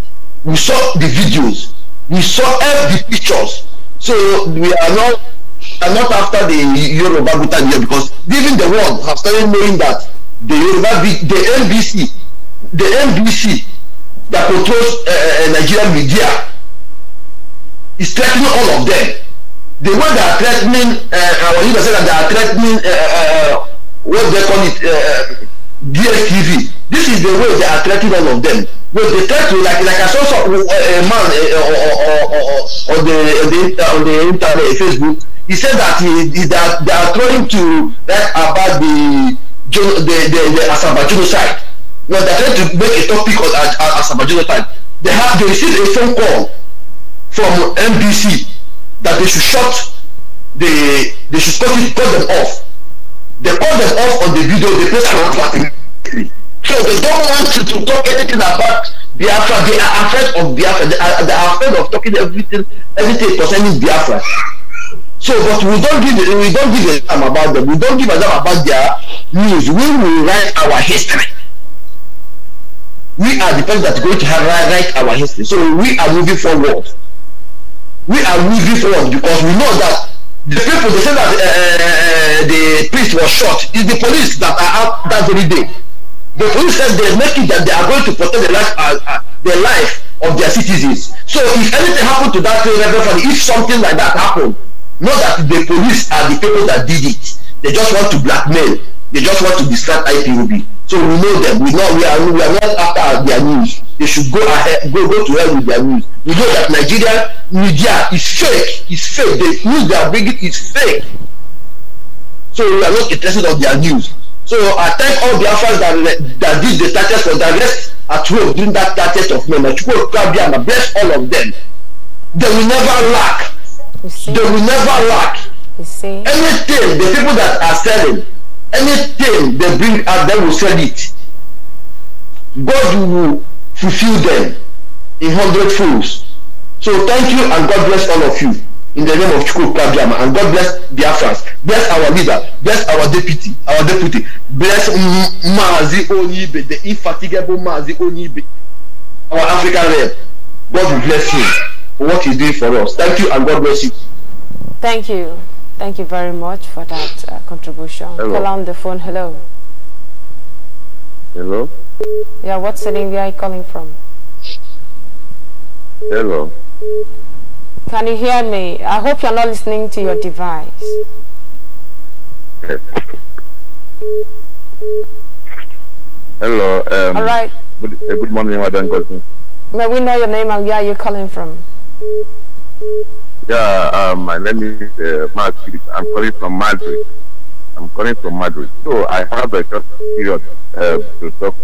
Speaker 2: We saw the videos, we saw all the pictures. So we are not are not after the Yoruba Gutan here because even the world have started knowing that the Yoruba, the NBC, the NBC that controls uh, Nigerian media is threatening all of them. The way they are threatening, uh, our leader said that they are threatening uh, uh, what they call it, uh, DSTV this is the way they are treating all of them when they try to like like i saw some uh, a uh, man uh, or, or, or, or, on the on the, uh, on the internet facebook he said that he, he that they are trying to write about the the the, the asaba genocide well they tried to make a topic on asabajuno asaba genocide they have they received a phone call from nbc that they should shut the they should cut it cut them off they cut them off on the video they post on twitter so they don't want you to talk anything about Biafra. They are afraid of Biafra. They are, they are afraid of talking everything, everything concerning Biafra. So, but we don't give we don't give a damn about them. We don't give a damn about their news. We will write our history. We are the people that are going to have, write our history. So we are moving forward. We are moving forward because we know that the people they say that uh, the priest was shot is the police that are out that very day. The police said they make it that they are going to protect the life, uh, uh, the life of their citizens. So if anything happened to that family, if something like that happened, not that the police are the people that did it. They just want to blackmail. They just want to distract IPOB. So we know them. We know we are we are not after their news. They should go ahead, go go to hell with their news. We know that Nigeria media is fake. It's fake. The news they are bringing is fake. So we are not interested on their news. So I thank all the that, that did the statutes for the at home during that statutes of men. I bless all of them. They will never lack. They will never lack. You see? Anything, the people that are selling, anything they bring out, they will sell it. God will fulfill them in hundred folds. So thank you and God bless all of you in the name of Chukwuka And God bless Biafrans. Bless our leader. Bless our deputy. Our deputy. Bless Mazi Onibe, the infatigable Mazi Onibe, our African rep. God bless him for what he's doing for us. Thank you and God bless you.
Speaker 1: Thank you. Thank you very much for that uh, contribution. Hello. Call on the phone. Hello. Hello. Yeah, what city are you calling from? Hello. Can you hear me? I hope you're not listening to your device.
Speaker 2: Hello.
Speaker 3: Um, All right. Good, uh, good morning, Madam Godwin.
Speaker 1: May we know your name and where you're calling from?
Speaker 3: Yeah, um, my name is uh, I'm calling from Madrid. I'm calling from Madrid. So I have a short period uh, to talk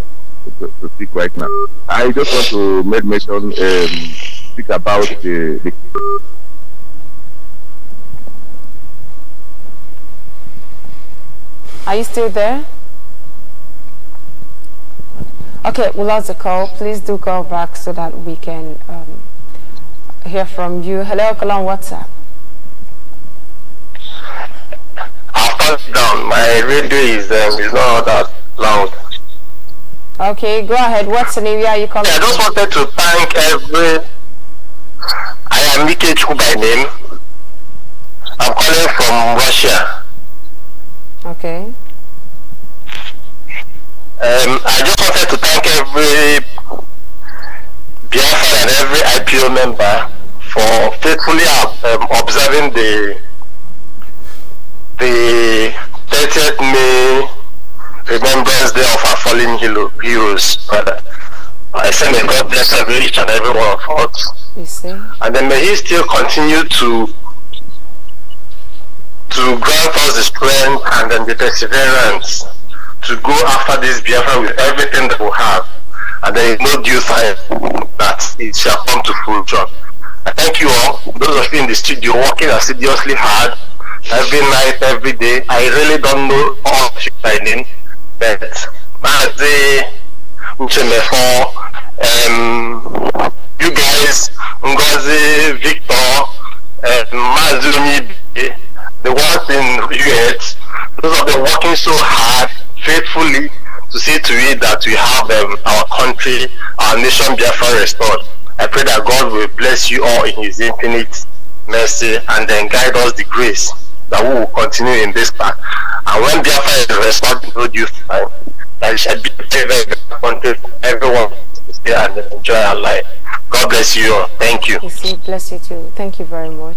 Speaker 3: to, to, speak right now. I just want to make mention. Um, speak about the, the
Speaker 1: Are you still there? Okay, we lost the call. Please do call back so that we can um, hear from you. Hello, call on WhatsApp.
Speaker 3: I'll down. My radio is, um, is not that loud.
Speaker 1: Okay, go ahead. What's the name? Yeah, you calling? Yeah, I just
Speaker 2: wanted to thank every I am Mike Chuku by name. I'm calling from Russia. Okay. Um, I just wanted to thank every Biafra and every IPO member for faithfully um, observing the the 30th May Remembrance Day of our fallen heroes, brother. I send a God bless every each and every one of us.
Speaker 4: You see?
Speaker 3: And then may He still continue to to grant us the strength and then the perseverance to go after this Biafra with everything that we have. And there is no due time that it shall come to full job.
Speaker 2: I thank you all, those of you in the studio working assiduously hard every night, every day. I really don't know all the training, but as the Uchemefo, uh, um, you guys,
Speaker 3: Ngozi, Victor, and Mazumi, the ones in US, those have been working so hard, faithfully, to see to it that we
Speaker 2: have um, our country, our nation Biafra restored. I pray that God will bless you all in his infinite mercy and then guide us the grace that we will continue in this path. And when Biafra is restored in due time, that it shall be a very, to country for everyone. Yeah, and enjoy our life. God bless you all. Thank you.
Speaker 1: Yes, bless you too. Thank you very much.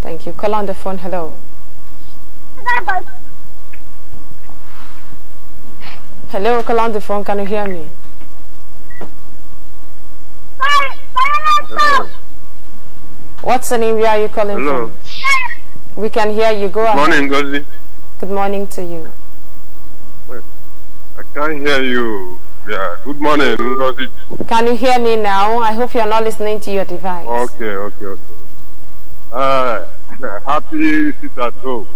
Speaker 1: Thank you. Call on the phone. Hello. Hello, call on the phone. Can you hear me? Hello. What's the name? Where are you calling Hello. from? We can hear you. Go Good Morning, Gozi. Good morning to you.
Speaker 3: I can't hear you. Yeah, good morning,
Speaker 1: Can you hear me now? I hope you're not listening to your device.
Speaker 3: Okay, okay, okay. Uh, happy sit at home.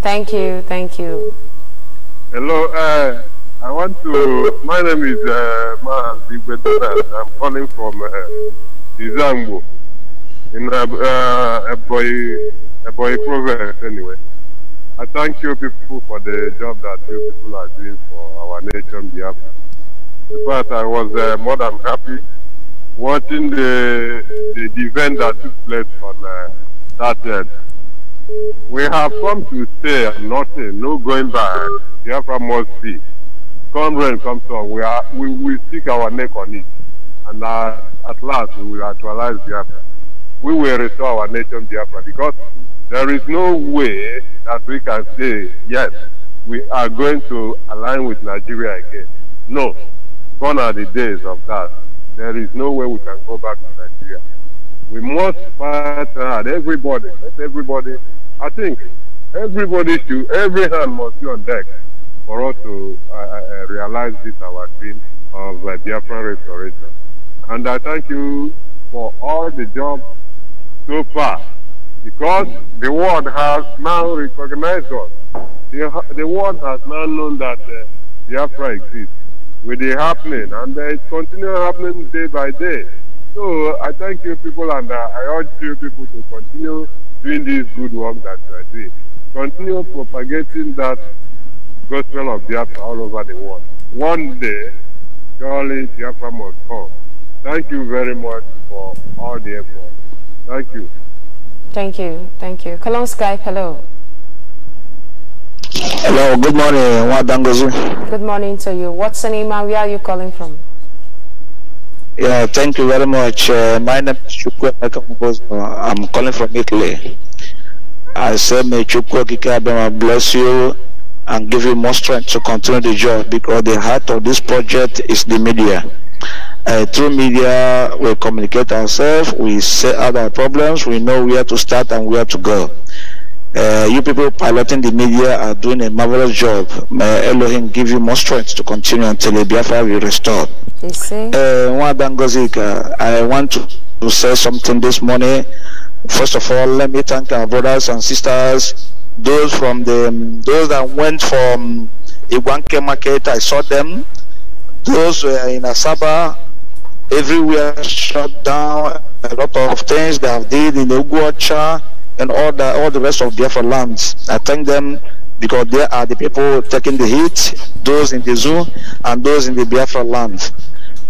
Speaker 1: Thank you, thank you.
Speaker 3: Hello, uh, I want to, my name is uh, eh, Ma I'm calling from uh, eh, Izambo, in uh, boy a boy province anyway. I thank you people for the job that you people are doing for our nation, Biafra. In fact, I was uh, more than happy watching the, the, event that took place on uh, that day. We have come to stay and nothing, no going back. Biafra must be. Come rain, come storm, we, are, we will stick our neck on it. And uh, at last, we will actualize Biafra. We will restore our nation, Biafra, because there is no way that we can say, yes, we are going to align with Nigeria again. No. Gone are the days of that. There is no way we can go back to Nigeria. We must fight hard. Everybody, let everybody, I think everybody should, every hand must be on deck for us to uh, uh, uh realize this, our dream of uh, Biafran restoration. And I thank you for all the job so far because the world has now recognized us. The, the world has now known that uh, Biafra exists with the happening, and uh, it's continuing happening day by day. So uh, I thank you people, and uh, I urge you people to continue doing this good work that you are doing. Continue propagating that gospel of Biafra all over the world. One day, surely Biafra must come. Thank you very much for all the effort. Thank you.
Speaker 1: Thank you. Thank you. Call Skype. Hello.
Speaker 3: Hello. Good morning, Wadangozu.
Speaker 1: Good morning to you. What's your name and where are you calling from?
Speaker 2: Yeah, thank you very much. Uh, my name is Chukwu I'm calling from Italy. I say may Chukwu Kikabema bless you and give you more strength to continue the job because the heart of this project is the media uh, through media, we communicate ourselves, we set out our problems, we know where to start and where to go. Uh, you people piloting the media are doing a marvelous job. May Elohim give you more strength to continue until the Biafra will restored. You see? Uh, I want to, to say something this morning. First of all, let me thank our brothers and sisters, those from the those that went from Iwanke market. I saw them. Those were in Asaba everywhere shut down. A lot of things they have did in Uguacha and all the all the rest of Biafra lands. I thank them because they are the people taking the heat, those in the zoo and those in the Biafra land.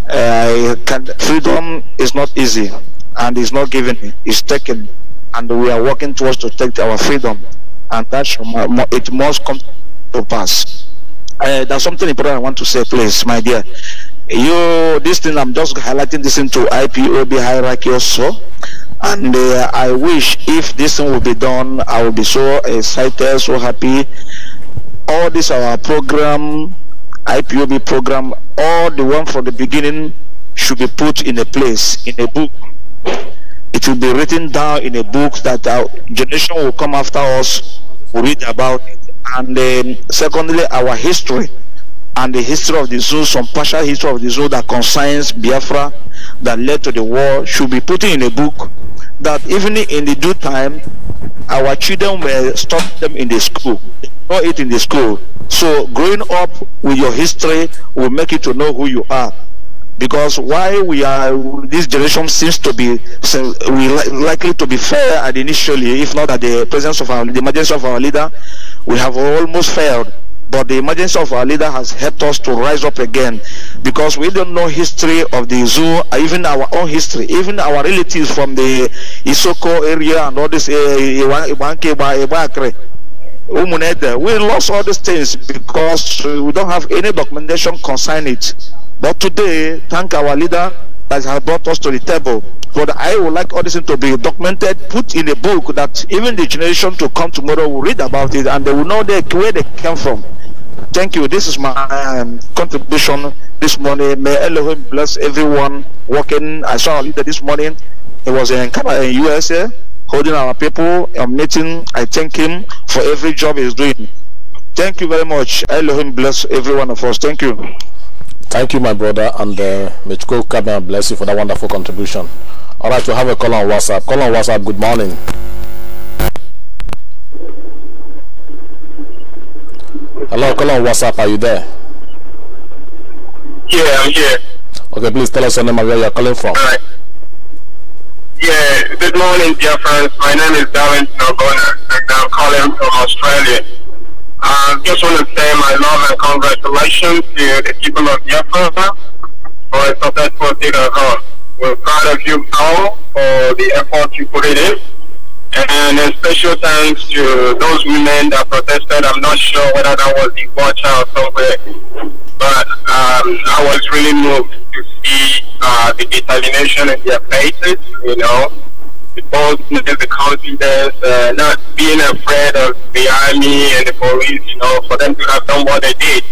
Speaker 2: Uh, can, freedom is not easy and it's not given, it's taken. And we are working towards to take our freedom. And that should, it must come to pass. Uh, there's something important I want to say, please, my dear you this thing i'm just highlighting this into ipob hierarchy also and uh, i wish if this thing will be done i will be so excited so happy all this our program ipob program all the one from the beginning should be put in a place in a book it will be written down in a book that our generation will come after us will read about it and then um, secondly our history and the history of the zoo, some partial history of the zoo that concerns Biafra that led to the war should be put in a book that even in the due time our children will stop them in the school or it in the school so growing up with your history will make you to know who you are because why we are this generation seems to be so we li likely to be fair at initially if not at the presence of our the emergence of our leader we have almost failed but the emergence of our leader has helped us to rise up again because we don't know history of the zoo uh, even our own history even our relatives from the isoko area and all this eh, eh, eh, we lost all these things because we don't have any documentation concerning it but today thank our leader that has brought us to the table but I would like all this to be documented, put in a book that even the generation to come tomorrow will read about it and they will know where they came from. Thank you. This is my um, contribution this morning. May Elohim bless everyone working. I saw a leader this morning. He was in Canada, in USA, holding our people a meeting. I thank him for every job he's doing. Thank you very much. Elohim bless every one of us. Thank you. Thank you, my brother, and uh, may God bless you for that wonderful contribution. All right, we have a call on WhatsApp. Call on WhatsApp. Good morning. Hello, What's WhatsApp, are you there?
Speaker 3: Yeah, I'm here.
Speaker 2: Okay, please tell us your name and where you're calling from. All right.
Speaker 3: Yeah, good morning, dear friends. My name is Darren Nogona, and I'm calling from Australia. I just want to say my love and congratulations to the people of Biafra for a successful dinner. We're proud of you all for
Speaker 2: the effort you put in. And a special thanks to those women that protested. I'm not sure whether that was in Bocha or somewhere, but um, I was really moved to see uh, the determination in their faces, you know, the boldness, the confidence, uh, not being afraid of the army
Speaker 3: and the police, you know, for them to have done what they did.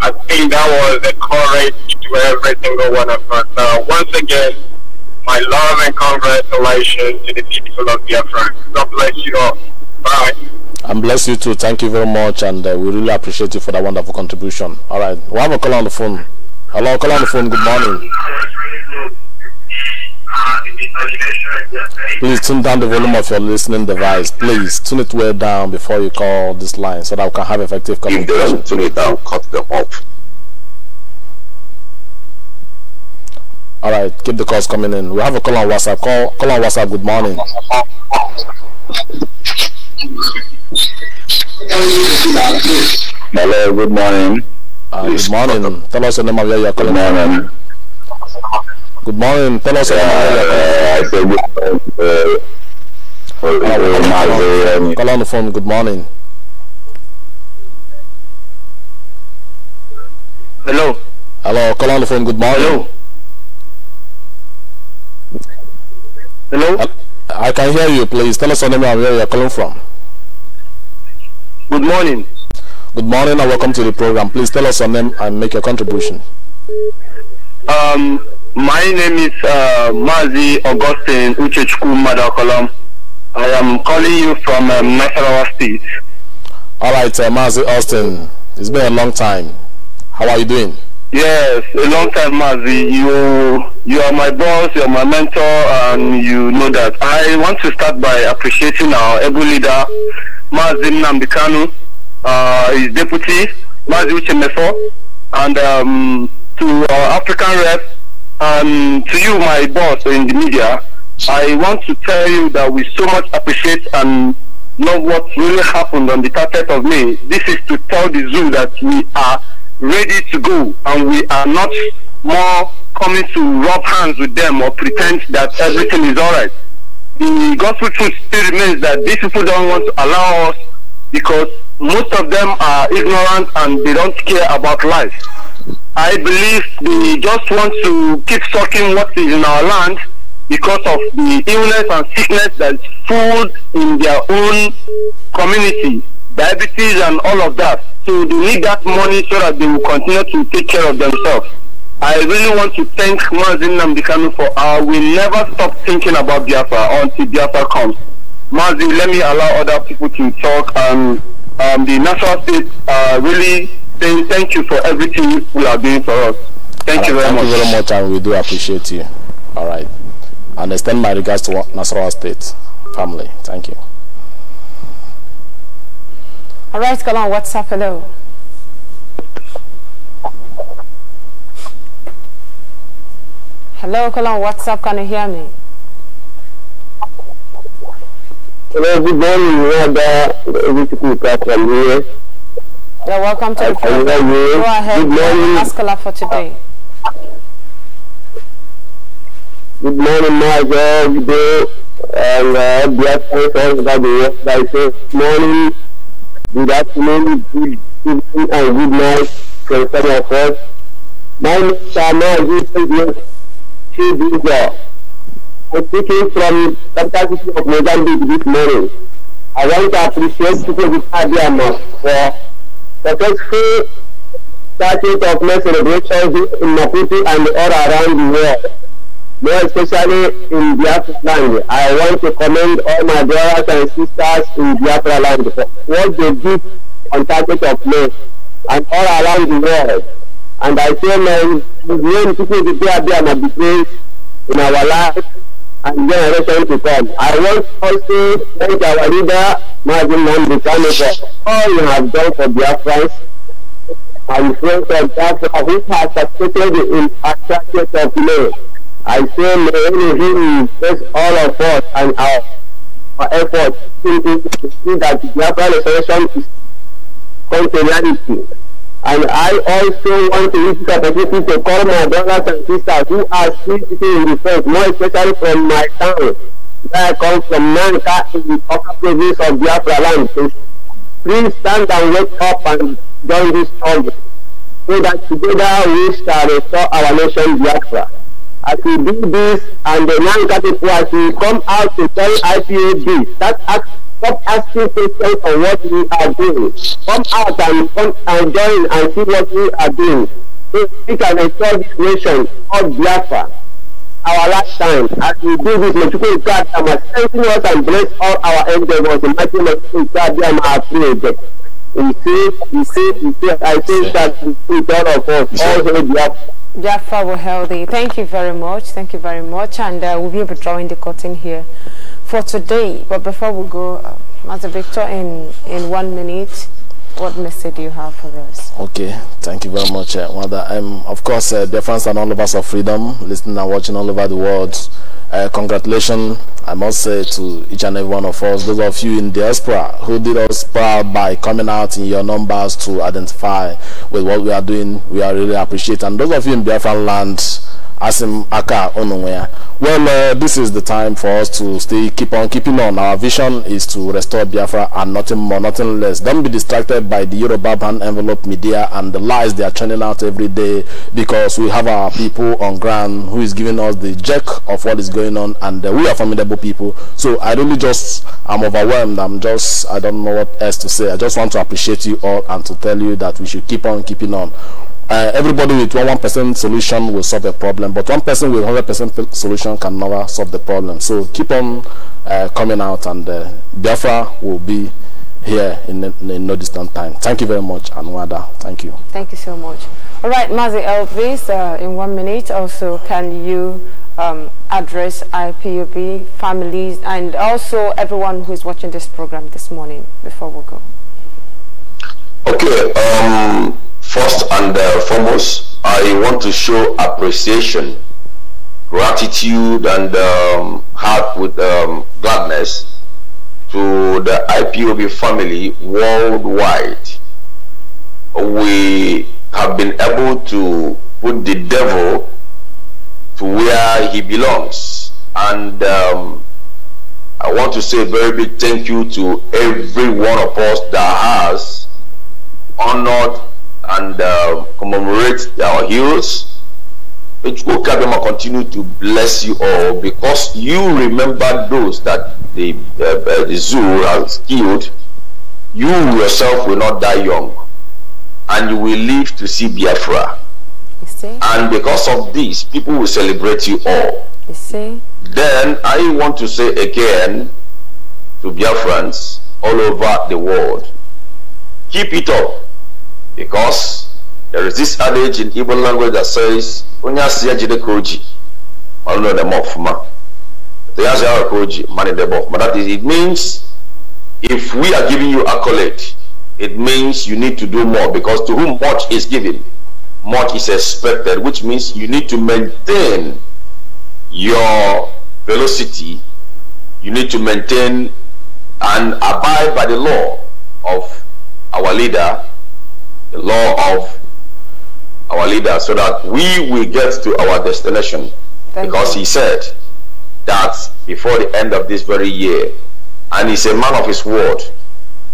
Speaker 3: I think that was the courage to every single one of us. Uh, once again, my love and congratulations to the people of Biafra. God bless you all. Bye.
Speaker 2: And bless you too. Thank you very much, and uh, we really appreciate you for that wonderful contribution. All right, we have a call on the phone.
Speaker 3: Hello, call on the phone. Good morning.
Speaker 2: Please tune down the volume of your listening device. Please tune it way down before you call this line so that we can have effective communication. If they don't tune it down, cut them off. All right, keep the calls coming in. We have a call on WhatsApp. Call, call on WhatsApp. Good morning. Hello, good morning. Uh, good morning. Tell us your name of where you're calling. Good morning. Good morning. Tell us your name of where you're calling. Uh, uh call on the phone. Good morning. Hello. Hello. Call on the phone. Good morning. Hello. Hello? I can hear you, please. Tell us your name and where you're calling from. Good morning. Good morning and welcome to the program. Please tell us your name and make your contribution. Um, my name is uh, Mazi Augustine Uchechku Madakolam. I am calling you from um, Nasarawa State. All right, uh, Mazi Austin. It's been a long time. How are you doing? Yes, a long time, Mazi. You you are my boss, you are my mentor, and you know that. I want to start by appreciating our able leader, Mazim Nambikanu, uh, his deputy, Mazi Uchemefo, and um, to our African rep, and to you, my boss in the media. I want to tell you that we so much appreciate and love what really happened on the 30th of May. This is to tell the zoo that we are ready to go and we are not more coming to rub hands with them or pretend that everything is all right. The gospel truth still remains that these people don't want to allow us because most of them are ignorant and they don't care about life. I believe they just want to keep sucking what is in our land because of the illness and sickness that's food in their own community, diabetes and all of that. So they need that money so that they will continue to take care of themselves. I really want to thank Mazin Namdekanu for uh, We will never stop thinking about Biafra until Biafra comes. Mazin, let me allow other people to talk. Um, um, the national state uh, really saying thank you for everything you are doing for us. Thank right, you very thank much. Thank you very much, and we do appreciate you. All right. And extend my regards to National State family. Thank you.
Speaker 1: All right, come on, up? hello. Hello, call on WhatsApp. Can you hear me?
Speaker 2: Hello, good morning. You're yeah,
Speaker 1: welcome to the program. Go ahead. Good morning. Ask Allah for today.
Speaker 2: Good morning, my God. Good day. And uh, bless for Yes, I say good morning, good afternoon, good evening, and good night from some of us. My name is Shama to this law. I'm speaking from Capital City of Mozambique this morning. I want to appreciate people with Adiama for successful starting of my celebrations in Maputo and all around the world, more especially in Biafra land. I want to commend all my brothers and sisters in Biafra land for what they did on target of May and all around the world. And I say, man, when people prepare them and be praised in our lives and generation to come. I want also to thank our leader, Martin Nambikano, for all you have done for Biafrans and friends of Biafra who has succeeded in attracting of law. I say, may Elohim bless all of us and our, our efforts to see that Biafra restoration is come to reality. And I also want to use this opportunity to call my brothers and sisters who are still sitting in the front, more especially from my town, where I come from Nanka in the upper province of Biafra land. So please stand and wake up and join this struggle so that together we shall restore our nation Biafra. As we do this and the Nanka people as we come out to tell IPAB, that act Stop asking questions on what we are doing. Come out and come and join and see what we are doing. So we can restore this nation called Biafra. Our last time, as we do this, Mexico God must strengthen us and bless all our endeavors. The mighty Mexico God, they are prayed. we say. he says, he says, I say that with all of us, all the Biafra.
Speaker 1: Biafra were healthy. Thank you very much. Thank you very much. And uh, we'll be able to draw in the curtain here for today. But before we go, uh, Master Victor, in, in one minute, what message do you have for us?
Speaker 2: Okay, thank you very much, uh, eh, Wanda. Um, of course, uh, dear friends and all of us of freedom, listening and watching all over the world, uh, eh, congratulations, I must say, to each and every one of us, those of you in diaspora who did us proud by coming out in your numbers to identify with what we are doing. We are really appreciate. And those of you in Biafra land, Asim Aka Onumwea, well, uh, this is the time for us to stay, keep on keeping on. Our vision is to restore Biafra and nothing more, nothing less. Don't be distracted by the Yoruba ban envelope media and the lies they are churning out every day because we have our people on ground who is giving us the jerk of what is going on and uh, we are formidable people. So I really just, I'm overwhelmed. I'm just, I don't know what else to say. I just want to appreciate you all and to tell you that we should keep on keeping on uh, everybody with one one percent solution will solve the problem, but one person with hundred percent solution can never solve the problem. So keep on uh, coming out, and uh, Biafra will be here in, in, in, no distant time. Thank you very much, Anwada. Thank you.
Speaker 1: Thank you so much. All right, Mazi Elvis, uh, in one minute, also can you um, address I P U B families and also everyone who is watching this program this morning before we go?
Speaker 2: Okay. Um First and uh, foremost, I want to show appreciation, gratitude, and um, heart with um, gladness to the IPOB family worldwide. We have been able to put the devil to where he belongs. And um, I want to say a very big thank you to every one of us that has honored and uh, commemorate our heroes. May Chukwu continue to bless you all because you remember those that the, uh, uh, the zoo has killed. You yourself will not die young and you will live to see Biafra. And because of this, people will celebrate you all. You see? Then I want to say again to Biafrans all over the world, keep it up because there is this adage in Igbo language that says onye si jide koji o de ọrụ na edeme ọfụma ya koji mani ka o ji that is it means if we are giving you accolade it means you need to do more because to whom much is given much is expected which means you need to maintain your velocity you need to maintain and abide by the law of our leader the law of our leader so that we will get to our destination. Thank because you. he said that before the end of this very year, and he's a man of his word,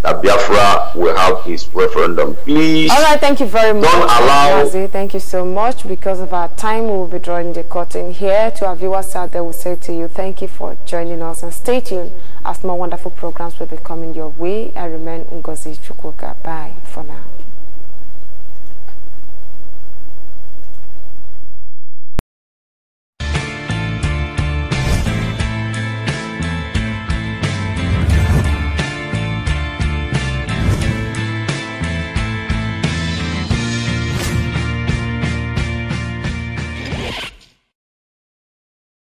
Speaker 2: that Biafra will have his referendum. Please. All right,
Speaker 1: thank you very much. Don't allow. Thank you so much. Because of our time, we will be drawing the curtain here. To our viewers out there, we say to you, thank you for joining us and stay tuned as more wonderful programs will be coming your way. I remain Ngozi Chukwuka. Bye for now.